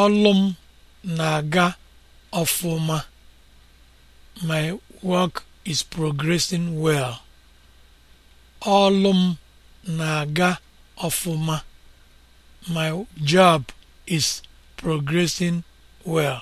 Ọlụ m na-aga ọfụma. My work na-aga ọfụma. My job is progressing well.